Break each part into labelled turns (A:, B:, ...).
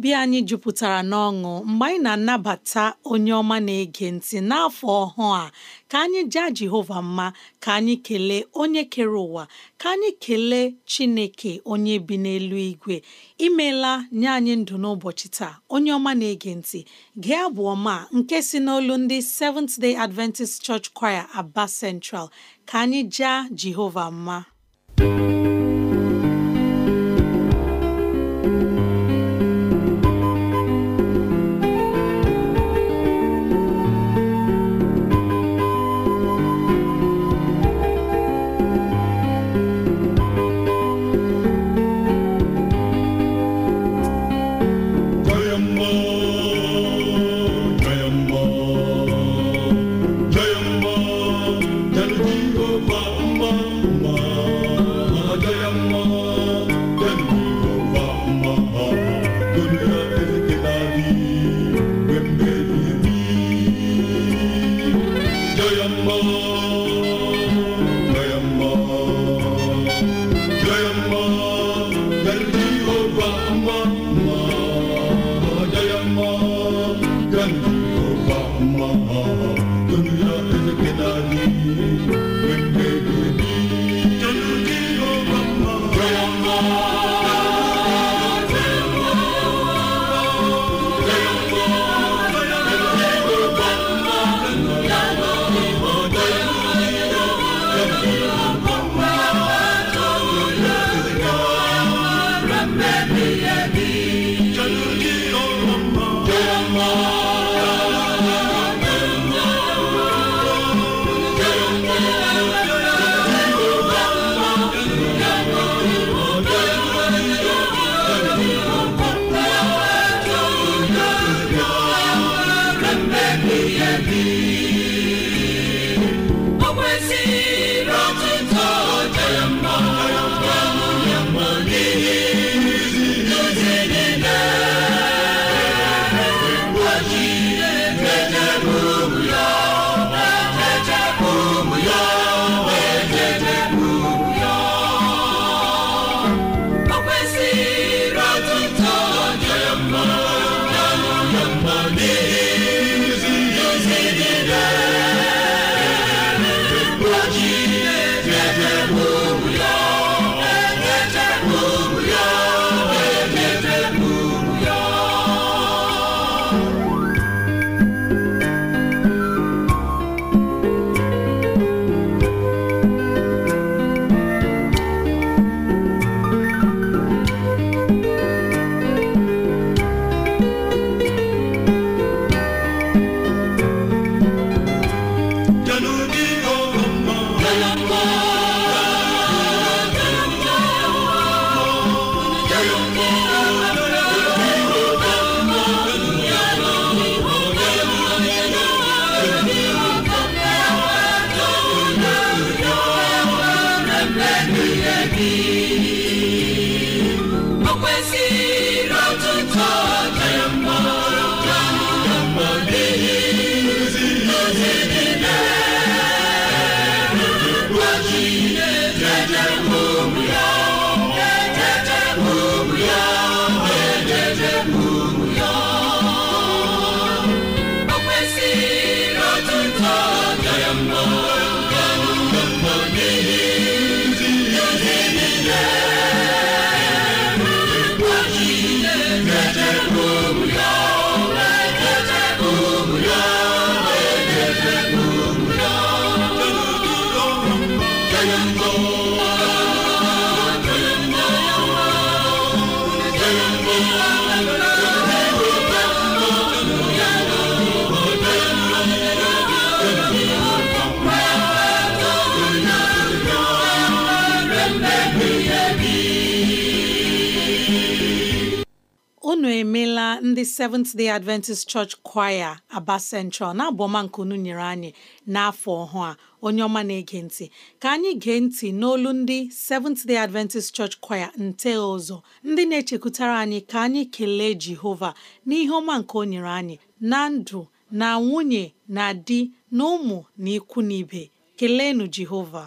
A: obi anyị jupụtara n'ọṅụ mgbe anyị na-anabata onye ọma na-ege ntị n'afọ ọhụụ a ka anyị jaa Jehova mma ka anyị kelee onye kere ụwa ka anyị kelee Chineke onye bi n'elu igwe imeela nye anyị ndụ n'ụbọchị taa onye ọma na-ege ntị gee abụ ọma nke si n'olu ndị Seventh Day Adventist Church Choir Aba Central ka anyị jaa Jehova mma
B: me. come.
A: ndị Seventh Day Adventist Church Choir Aba Central na-abụ nke unu nyere anyị n'afọ ọhụụ a onye ọma na-ege ntị ka anyị gee ntị n'olu ndị Seventh Day Adventist Church Choir nte ụzọ ndị na-echekwutara anyị ka anyị kelee Jehova n'ihe ọma nke o nyere anyị na ndụ na nwunye na di na ụmụ na ikwu na ibe keleenụ Jehova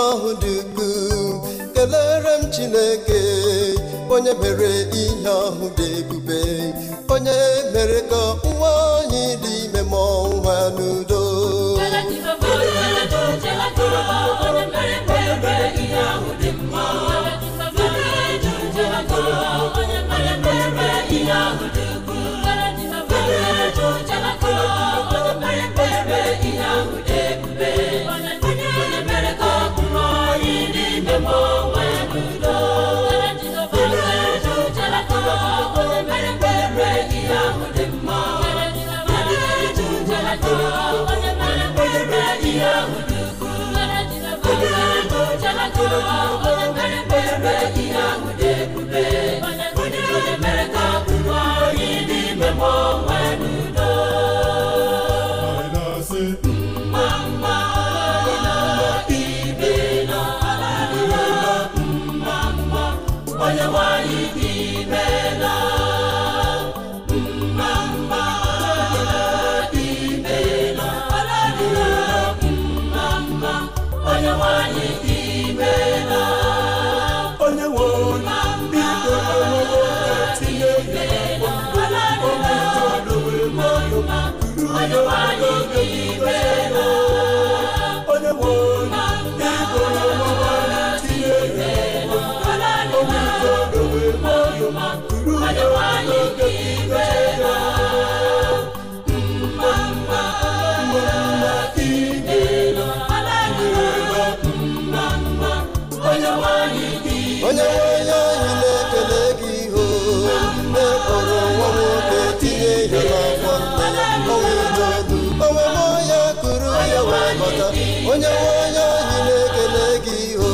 C: n'ọhụ dị ukwuu kelere m chineke onye mere ihe ọhụ dị ebube onye mere ka nwa onye dị ime ma nwa n'udo onye nwe onye anyị na-ekele gị iho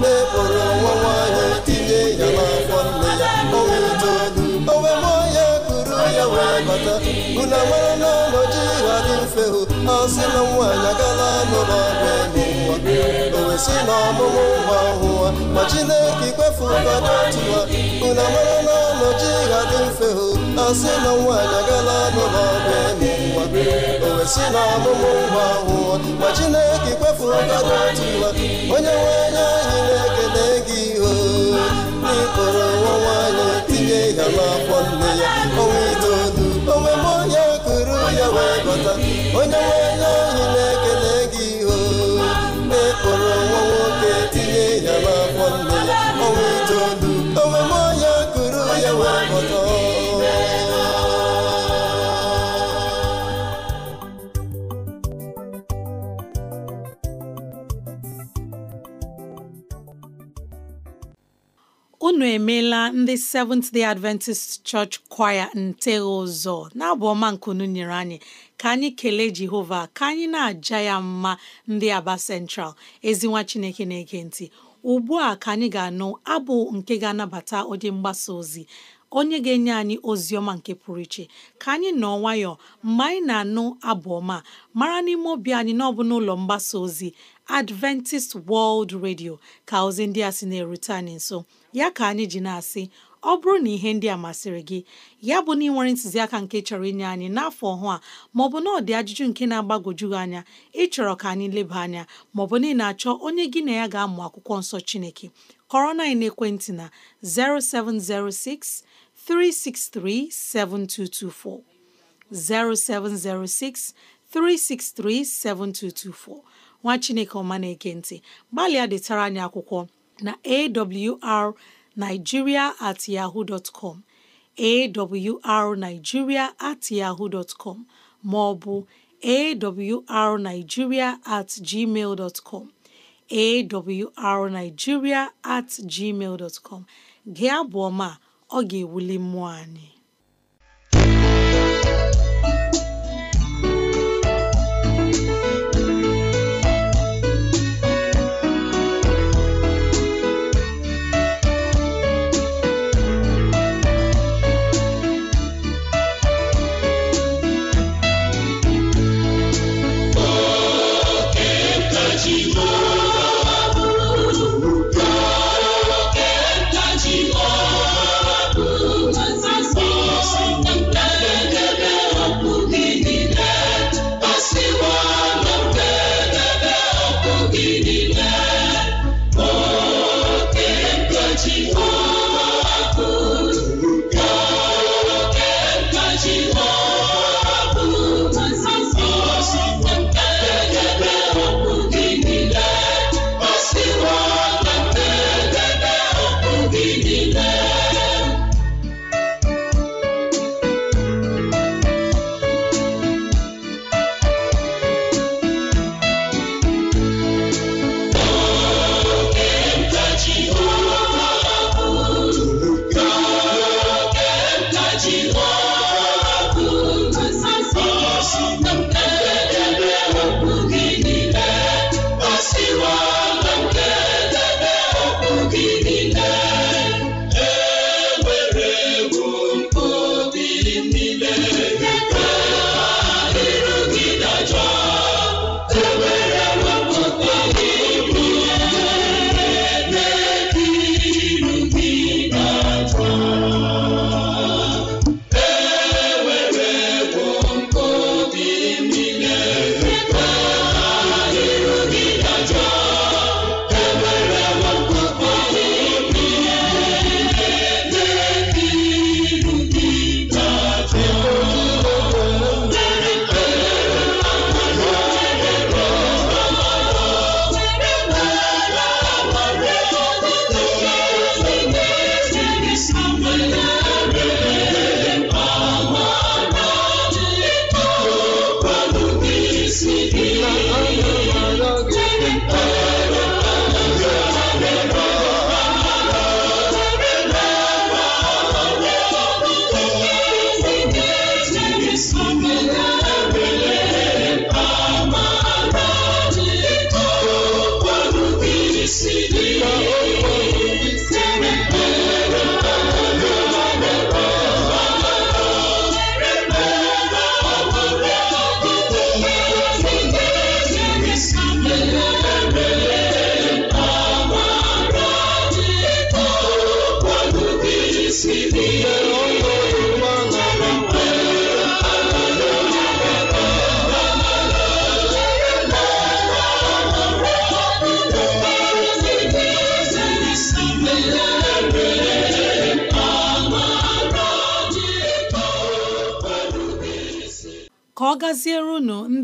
C: na-ekporo nwa nwaanyị tinye ya n'afọ nne ya ọnwa itoolu onwe m onye kuru ya wee bata unu mara na ọnọdụ ha dị mfe hụ a sị na nwaanyị agala n'ụlọ ọgwụ ịmụ nwa o wesị na ọmụmụ nwa hụwa ma Chineke ikwefu ụka dị otu mara na oji ga-adị mfe hụ a sị na nwaanyị agala n'ụlọ ọgwụ eme nwa o si na ọmụmụ nwa nwụọ ma Chineke kpefuru ọgada otu nwa onye nwe anya anyị na-ekele gị o n'ikporo nwa nwaanyị tinye ya n'afọ nne ya ọnwa itoolu onwe m onye kuru ya wee bata onye nwe
A: ndị Seventh Day Adventist Church Choir ntegha ụzọ na-abụ ọma nkunu nyere anyị ka anyị kelee Jehova ka anyị na-aja ya mma ndị Aba Central ezinwa Chineke na-ege ntị ugbu a ka anyị ga-anụ abụ nke ga-anabata onye mgbasa ozi onye ga-enye anyị ozi ọma nke pụrụ iche ka anyị nọ nwayọọ mgbe anyị na-anụ abụ ọma mara n'ime obi anyị na ọ bụ n'ụlọ mgbasa ozi Adventist World Radio ka ozi ndị a sị na-erute anyị nso ya ka anyị ji na-asị ọ bụrụ na ihe ndị a masịrị gị ya bụ na ị ntụziaka nke chọrọ inye anyị n'afọ ọhụ a maọbụ na ọ dị ajụjụ nke na-agbagwoju gị anya ịchọrọ ka anyị leba anya maọbụ na ị na-achọ onye gị na ya ga-amụ akwụkwọ nsọ Chineke kọrọ na ekwentị na 0706 363 7224 0706 363 7224 nwa Chineke ọma na-ekentị gbalịa detara anyị akwụkwọ na AWR nigeria at yahoo dot com at yahoo dot com ma ọ bụ at gmail dtcom com awrnigeria at gmal dot gị ọ ga-ewuli mmụọ anyị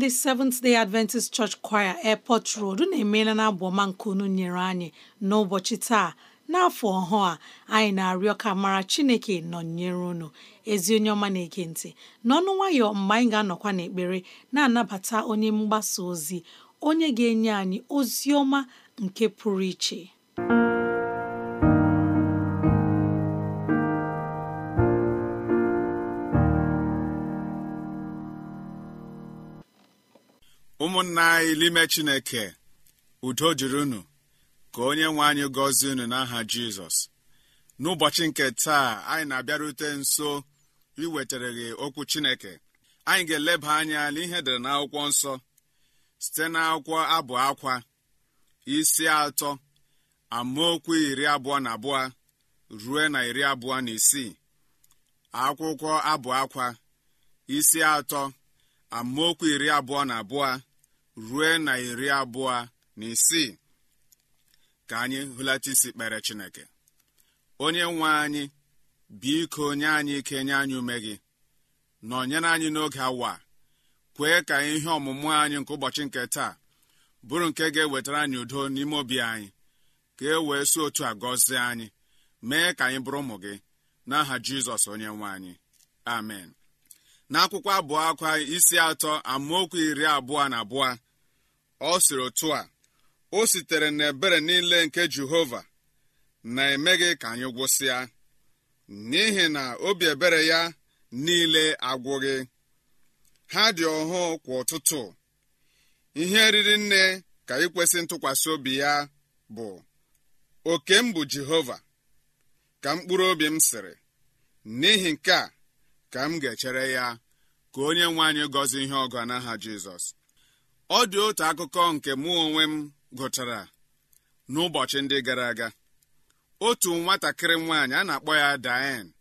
A: ndị Seventh Day Adventist Church Choir Airport Road na-emela na nke unu nyere anyị n'ụbọchị taa n'afọ ọhụụ a anyị na-arịọ ka mara Chineke nọnyere unu ezi onye ọma na-ege ntị n'ọnụ nwayọ mgbe anyị ga-anọkwa n'ekpere na-anabata onye mgbasa ozi onye ga-enye anyị ozi ọma nke pụrụ iche
D: ụmụnna anyị n'ime chineke udo dịrị unu ka onye nwe anyị gọzie unu n'aha jizọs n'ụbọchị nke taa anyị na-abịarute nso iwetara gị okwu chineke anyị ga-eleba anya n'ihe dere n'akwụkwọ nsọ site n'akwụkwọ abụ akwa isi atọ amaokwu iri abụọ na abụọ ruo na iri abụọ na isii akwụkwọ abụ akwa isi atọ amaokwu iri abụọ na abụọ rue na iri abụọ na isii ka anyị hụlata isi kpere chineke onye nwe anyị biko nye anyị ike nye anyị ume gị nọnyere anyị n'oge awa kwee ka ihe ọmụmụ anyị nke ụbọchị nke taa bụrụ nke ga-ewetara anyị udo n'ime obi anyị ka e wee si otu a gọzie anyị mee ka anyị bụrụ ụmụ gị n'aha jizọs onye nwe anyị amen n'akwụkwọ abụọ akwa isi atọ amaokwu iri abụọ na abụọ ọ sịrị otu a o sitere n'ebere niile nke jehova na-emeghị ka anyị gwụsịa n'ihi na obi ebere ya niile agwụghị ha dị ọhụụ kwa ụtụtụ ihe eriri nne ka ikwesị ntụkwasị obi ya bụ oke m bụ jehova ka mkpụrụ obi m sịrị n'ihi nke a ka m ga-echere ya ka onye nwe anyị gọzie ihe ọgọ n'aha jizọs ọ dị otu akụkọ nke mụ onwe m gụchara n'ụbọchị ndị gara aga otu nwatakịrị nwaanyị a na-akpọ ya Diane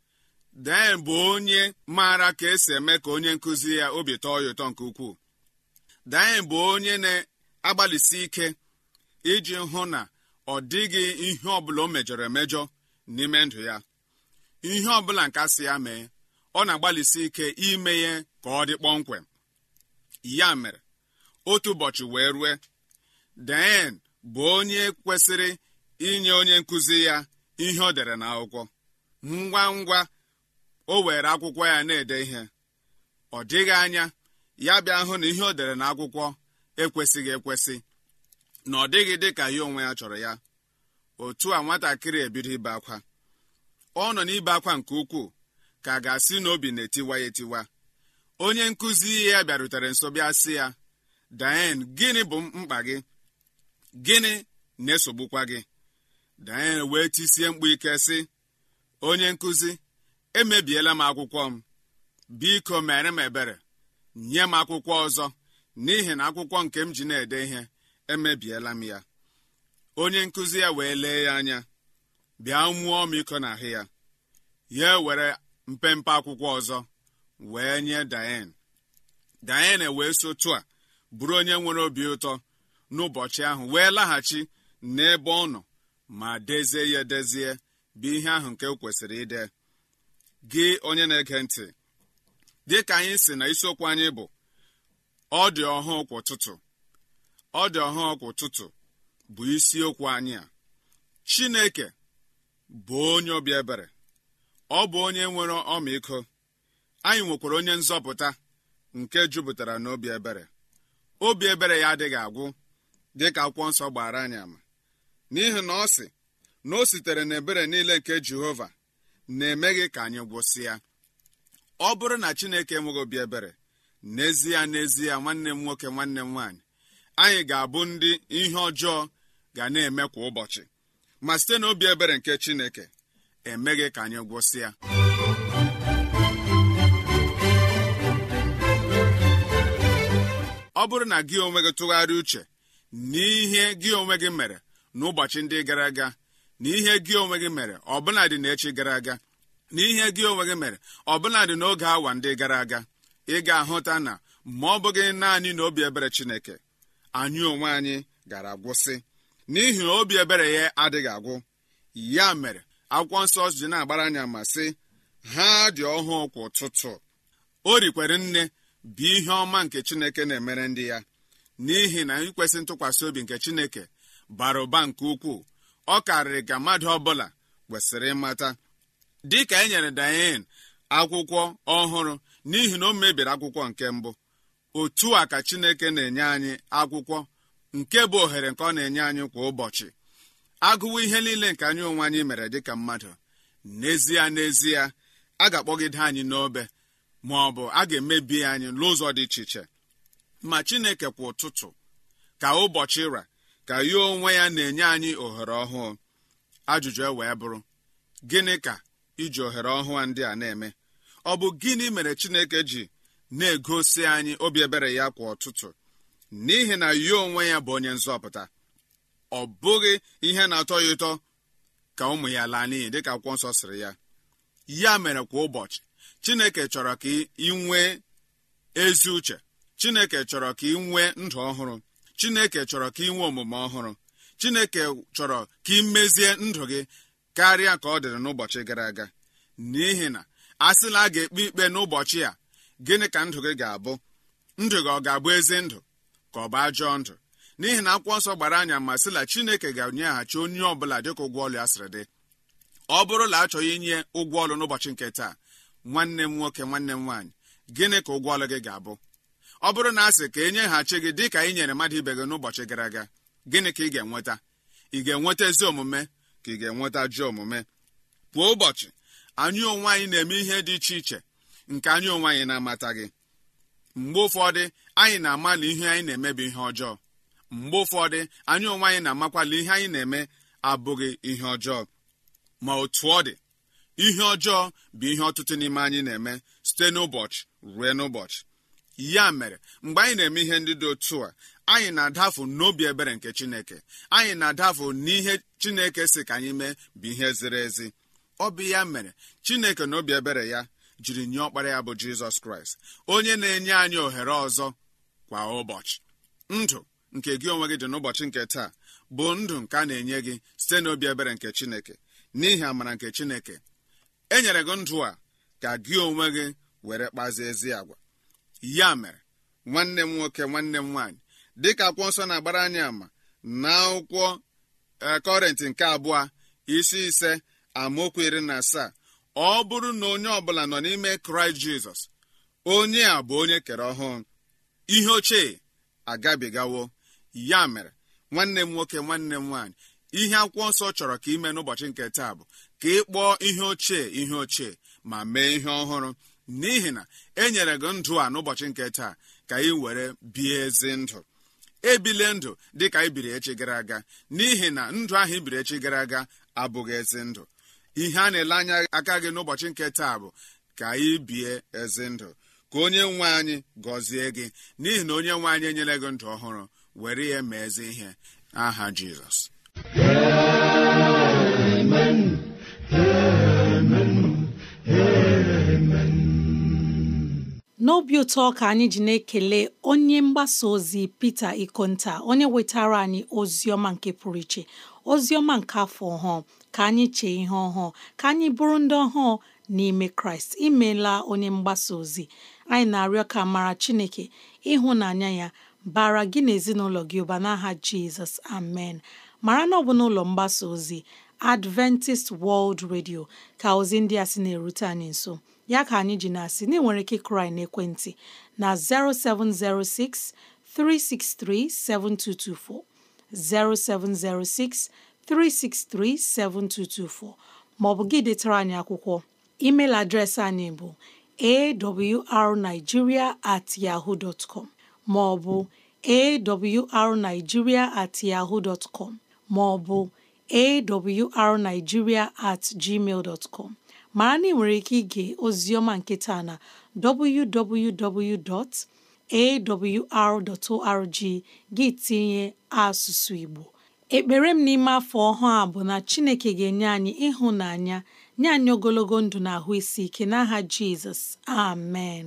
D: Diane bụ onye maara ka esi eme ka onye nkụzi ya obi tọọ ya ụtọ nke ukwuu Diane bụ onye na-agbalịsi ike iji hụ na ọ dịghị ihe ọbụla o mejọrọ emejọ n'ime ndụ ya ihe ọbụla nke asị ya mee ọ na-agbalịsi ike ime ya ka ọ dị kpọmkwem ya mere otu ụbọchị wee rue den bụ onye kwesịrị inye onye nkụzi ya ihe ọ dere n'akwụkwọ ngwa ngwa o were akwụkwọ ya na-ede ihe ọ dịghị anya ya bịa hụ na ihe o dere n'akwụkwọ ekwesịghị ekwesị na ọ dịghị dị ka ya onwe ya chọrọ ya otu a nwatakịrị ebido ibe akwa ọ nọ n'ibe akwa nke ukwuu ka a ga-asị na obi na-etiwa ya etiwa onye nkụzi ya bịarutere nso bịa sị ya Diane gịnị bụ mkpa gị gịnị na-esogbukwa gị Diane wee tisie mkpu ike sị onye nkụzi emebiela m akwụkwọ m biko mere m ebere nye m akwụkwọ ọzọ n'ihi na akwụkwọ nke m ji na-ede ihe emebiela m ya onye nkụzi ya wee lee ya anya bịa mụọ m iko ahụ ya ya were mpempe akwụkwọ ọzọ wee nye Diane Diane wee sotu a bụrụ onye nwere obi ụtọ n'ụbọchị ahụ wee laghachi n'ebe ọ nọ ma dezie ya edezie bụ ihe ahụ nke kwesịrị ide gị onye na-ege ntị dị ka anyị si na isiokwu anyị bụ ọ dị ọhụụ kwa tutu ọ dị ọhụụ kwa ụtụtụ bụ isiokwu anyị a chineke bụ onye obi ebere ọ bụ onye nwere ọmịiko anyị nwekwara onye nzọpụta nke jupụtara n'obi ebere obi ebere ya adịghị agwụ ka akwụkwọ nsọ gbara anyị ama n'ihi na ọ sị na o sitere n'ebere niile nke jehova na-emeghị ka anyị gwụsị ya ọ bụrụ na chineke enweghị obi ebere n'ezie n'ezie nwanne m nwoke nwanne m nwaanyị anyị ga-abụ ndị ihe ọjọọ ga na-eme kwa ụbọchị ma site na obi ebere nke chineke emeghị ka anyị gwụsị ọ bụrụ na gị onwe gị tụgharịa uche n'ihe gị onwe gị mere n'ụbọchị ndị gara aga na ihe gị onwe gị mere ọbụladị n'echi gara aga na ihe gị onwe gị mere dị n'oge awa ndị gara aga ị ga-ahụta na ma ọ bụghị naanị na obi ebere Chineke anyị onwe anyị gara agwụsị n'ihi na obi ebere ya adịghị agwụ ya mere akwụkwọ nsọ ji na-agbara anya ma sị ha dị ọhụụ kwa ụtụtụ o rikwere nne bụ ihe ọma nke chineke na-emere ndị ya n'ihi na ikwesị ntụkwasị obi nke chineke bara ụba nke ukwuu ọ karịrị ka mmadụ ọbụla kwesịrị ịmata dịka e nyere dayen akwụkwọ ọhụrụ n'ihi na o mebiri akwụkwọ nke mbụ otu a ka chineke na-enye anyị akwụkwọ nke bụ ohere nke ọ na-enye anyị kwa ụbọchị agụwa ihe niile nke anyị onwe anyị mere dịka mmadụ n'ezie n'ezie a ga-akpọgide anyị n'obe ma ọ bụ a ga-emebi anyị n'ụzọ dị iche iche ma chineke kwa ụtụtụ ka ụbọchị ra ka ya onwe ya na-enye anyị ohere ọhụụ ajụjụ e wee bụrụ gịnị ka iji ohere ọhụụ ndị a na-eme ọ bụ gịnị mere chineke ji na-egosi anyị obi ebere ya kwa ụtụtụ n'ihi na ya onwe ya bụ onye nzọpụta ọ bụghị ihe na-atọ ya ụtọ ka ụmụ ya laa n'iyi dịka akwụkwọ nsọ siri ya ya mere kwa ụbọchị chineke chọrọ ka ị nwee ezi uche chineke chọrọ ka ị nwee ndụ ọhụrụ chineke chọrọ ka ị nwee omume ọhụrụ chineke chọrọ ka ị mezie ndụ gị karịa ka ọ dịrị n'ụbọchị gara aga n'ihi na asịla a ga-ekpe ikpe n'ụbọchị a gịnị ka ndụ gị ga-abụ ndụ gị ọ ga-abụ ezi ndụ ka ọ bụ ajọọ ndụ n'ihi na akwụkwọ nsọ gbara anya ma sịla chineke ga-enyeghachi onye ọ bụla dịka ụgwọ ọlụ ya sịrị dị ọ bụrụ na achọghị inye ụgwọ ọlụ n'ụbọchị nke taa nwanne m nwoke nwanne m nwaanyị gịnị ka ụgwọ ọlụ gị ga-abụ ọ bụrụ na asị ka e nyeghachi gị dị ka ị nyere mmadụ ibe gị n'ụbọchị gara aga gịnị ka ị ga-enweta ị ga-enweta ezi omume ka ị ga-enweta ji omume kwa ụbọchị anyị onwe anyị na-eme ihe dị iche iche nke anyị onwe anyị na-amata gị mgbe ụfọdụ anyị na-amalị ihe anyị na-emebi ihe ọjọọ mgbe ụfọdụ anyị onwe anyị na-amakwala ihe anyị na-eme abụghị ihe ọjọọ ma otu ọ dị ihe ọjọọ bụ ihe ọtụtụ n'ime anyị na-eme site n'ụbọchị ruo n'ụbọchị ya mere mgbe anyị na-eme ihe ndị dị otu a anyị na-adafu n'obi ebere nke chineke anyị na-adafu n'ihe chineke si ka anyị mee bụ ihe ziri ezi ọ bụ ya mere chineke na obi ebere ya jiri nye ọkpara ya bụ jizọs kraịst onye na-enye anyị ohere ọzọ kwa ụbọchị ndụ nke gị onwe gị dị n'ụbọchị nke taa bụ ndụ nke a na-enye gị site n'obi ebere nke chineke n'ihi amara nke chineke e nyere gị ndụ a ka gị onwe gị were kpazi ezi agwa ya mere nwanne m nwoke nwanne m nwaanyị dịka akwụkwọ nsọ na-agbara anyị ama na akwụkwọ e, kọrịntị nke abụọ isi ise amaokwu iri na asaa ọ bụrụ na onye ọbụla nọ n'ime kraịst jizọs onye a bụ onye kere ọhụụ ihe ochie agabigawo ya mere nwanne m nwoke nwanne m nwaanyị ihe akwụkwọ nsọ chọrọ ka ime n'ụbọchị nke taa bụ ka ị kpọọ ihe ochie ihe ochie ma mee ihe ọhụrụ n'ihi na e nyere gị ndụ a n'ụbọchị nke taa ka ị were bie ezi ndụ ebile ndụ dị ka ibiri echi gara aga n'ihi na ndụ ahụ ibiri echi gara aga abụghị ezi ndụ ihe a na-ele anya aka gị n'ụbọchị nke taa bụ ka ị bie ezi ndụ ka onye nwe anyị gọzie gị n'ihi na onye nwe anyị enyere gị ndụ ọhụrụ were ya mee ezi ihe aha jizọs هامن
A: هامن haamen n'obi ụtọ ka anyị ji na-ekele onye mgbasa ozi Pita Ikonta onye wetara anyị ozi ọma nke pụrụ iche ozi ọma nke afọ ọhụụ ka anyị chee ihe ọhụụ ka anyị bụrụ ndị ọhụụ n'ime Kraịst imeela onye mgbasa ozi anyị na-arịọ ka mara Chineke ịhụnanya ya bara gị na ezinụlọ gị ụba n'aha Jizọs amen mara na ọ bụ n'ụlọ mgbasa ozi Adventist World Radio ka ozi ndị a sị na-erute anyị nso ya ka anyị ji na-asị na enwere ike kụrụ anyị n'ekwentị na 0706 363 7224 ma ọ bụ gị detara anyị akwụkwọ email adreesị anyị bụ awrnigeria at yahoo dot com ma awrnigeria at yahoo dot ma ọ bụ awrnigeria at gmail dot com mara na ị nwere ike ige oziọma nke taa na www.awr.org gị tinye asụsụ Igbo ekpere m n'ime afọ ọhụụ a bụ na Chineke ga-enye anyị ịhụnanya nye anyị ogologo ndụ na ahụ isi ike n'aha Jizọs amen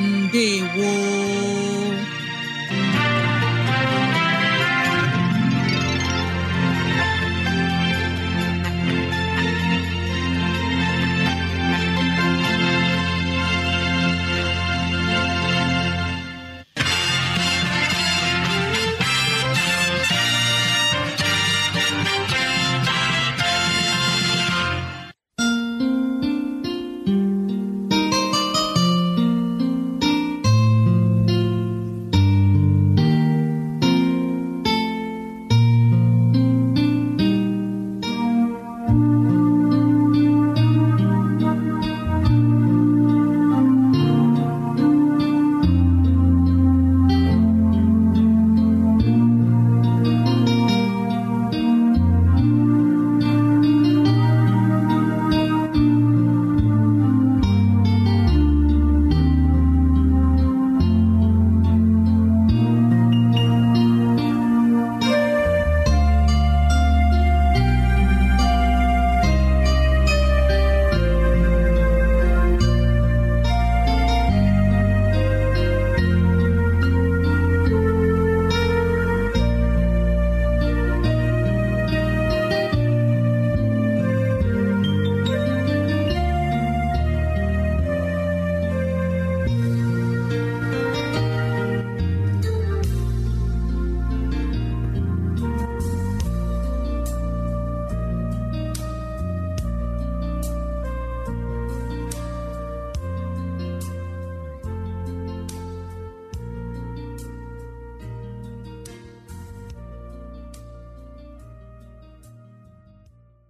A: ndewo